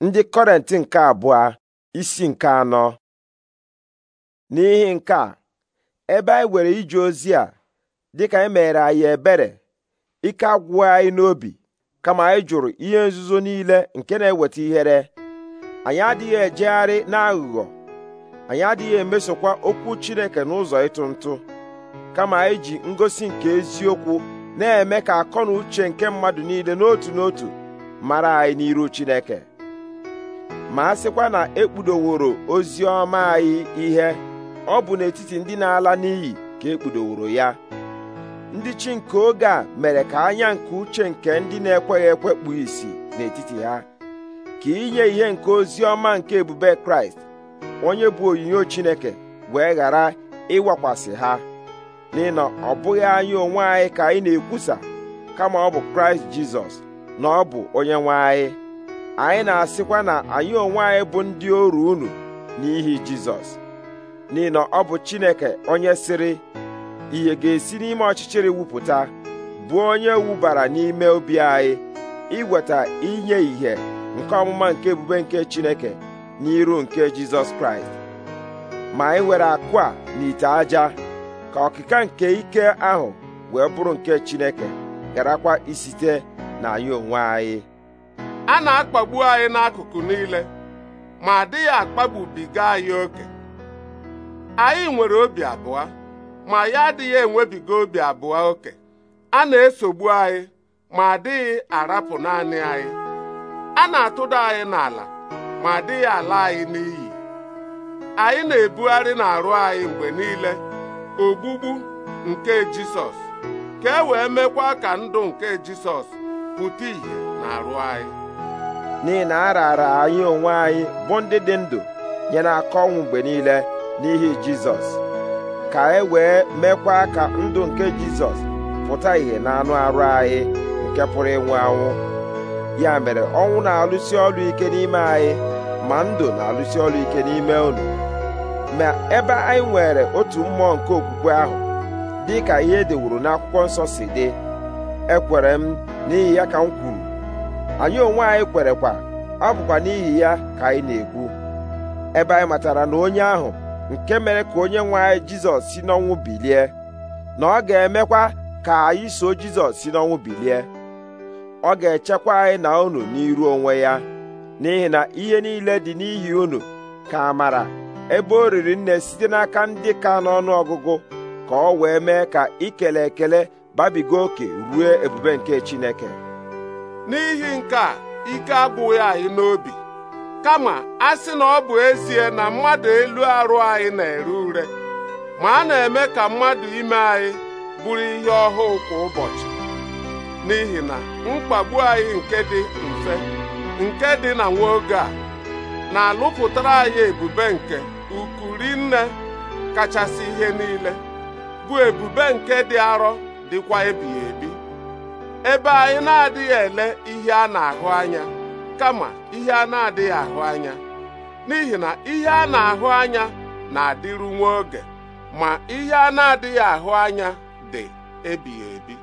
ndị kọrent nke abụọ isi nke anọ n'ihi nke a ebe anyị were ije ozi a dịka anyị mere anyị ebere ike agwụghị anyị n'obi kama anyị jụrụ ihe nzuzo niile nke na-eweta ihere anyị adịghị ejegharị n'aghụghọ anyị adịghị emesokwa okwu Chineke n'ụzọ ịtụ ntụ kama anyị ji ngosi nke eziokwu na-eme ka akọ na uche nke mmadụ niile n'otu n'otu mara anyị n'iru Chineke ma a sịkwa na ekpudoworo ozi ọma anyị ihe ọ bụ n'etiti ndị na-ala n'iyi ka ekpudoworo ya ndị chi nke oge a mere ka anya nke uche nke ndị na-ekweghị ekwe isi n'etiti ha ka inye ihe nke ozi ọma nke ebube kraịst onye bụ onyinyo chineke wee ghara ịwakwasị ha n'ihi na ọ bụghị anya onwe anyị ka anyị na-ekwusa kama ọ bụ kraịst jizọs na ọ bụ onye nwe anyị anyị na-asịkwa na anyị onwe anyị bụ ndị oru unu n'ihi jizọs n'ihi na ọ bụ chineke onye sịrị ihe ga-esi n'ime ọchịchịrị wupụta bụ onye wubara n'ime obi anyị iweta inye ìhè nke ọmụma nke ebube nke chineke n'iru nke jizọs kraịst ma anyị were akụ a n'ite aja ka ọkịka nke ike ahụ wee bụrụ nke chineke garakwa isite na anyị onwe anyị a na-akpagbu anyị n'akụkụ niile ma adịghị akpagbubiga anyị oke anyị nwere obi abụọ ma ya adịghị enwebiga obi abụọ oke a na-esogbu anyị ma adịghị arapụ naanị anyị a na-atụda anyị n'ala ma adịghị ala anyị n'iyi anyị na-ebugharị n'arụ anyị mgbe niile ogbugbu nke Jisọs ka e wee mekwa ka ndụ nke Jisọs pụta ìhè n'arụ anyị n'ihi na a raara anyị onwe anyị bụ ndị dị ndụ nye n'aka ọnwụ mgbe niile n'ihi jizọs ka e wee mekwa ka ndụ nke jizọs pụta ìhè na anụ arụ anyị nke pụrụ ịnwụ anwụ ya mere ọnwụ na-alụsi ọrụ ike n'ime anyị ma ndụ na-alụsi ọrụ ike n'ime unu ma ebe anyị nwere otu mmụọ nke okwukwe ahụ dị ka ihe edewuru n'akwụkwọ nsọ si dị ekwere m n'ihi ya ka m kwuru anyị onwe anyị kwerekwa ọ bụkwa n'ihi ya ka anyị na-ekwu ebe anyị matara na onye ahụ nke mere ka onye nwe anyị jizọs si n'ọnwụ bilie na ọ ga-emekwa ka anyị so jizọs si n'ọnwụ bilie ọ ga-echekwa anyị na unu n'iru onwe ya n'ihi na ihe niile dị n'ihi unu ka amara ebe o riri nne site n'aka ndị ka n'ọnụ ọgụgụ ka ọ wee mee ka ikele ekele babiga oke ruo ebube nke Chineke n'ihi nke a ike abụghị anyị n'obi kama a sị na ọ bụ ezie na mmadụ elu arụ anyị na-ere ure ma a na-eme ka mmadụ ime anyị bụrụ ihe ọhụụ kwa ụbọchị n'ihi na mkpagbu anyị nke dị mfe nke dị na nwa oge a na-alụpụtara anyị ebube nke ukwu rinne kachasị ihe niile bụ ebube nke dị arọ dịkwa ebighị ebi ebe anyị na-adịghị ele ihe a na-ahụ anya kama ihe a na-adịghị ahụ anya n'ihi na ihe a na-ahụ anya na-adịru nwa oge ma ihe a na-adịghị ahụ anya dị ebighị ebi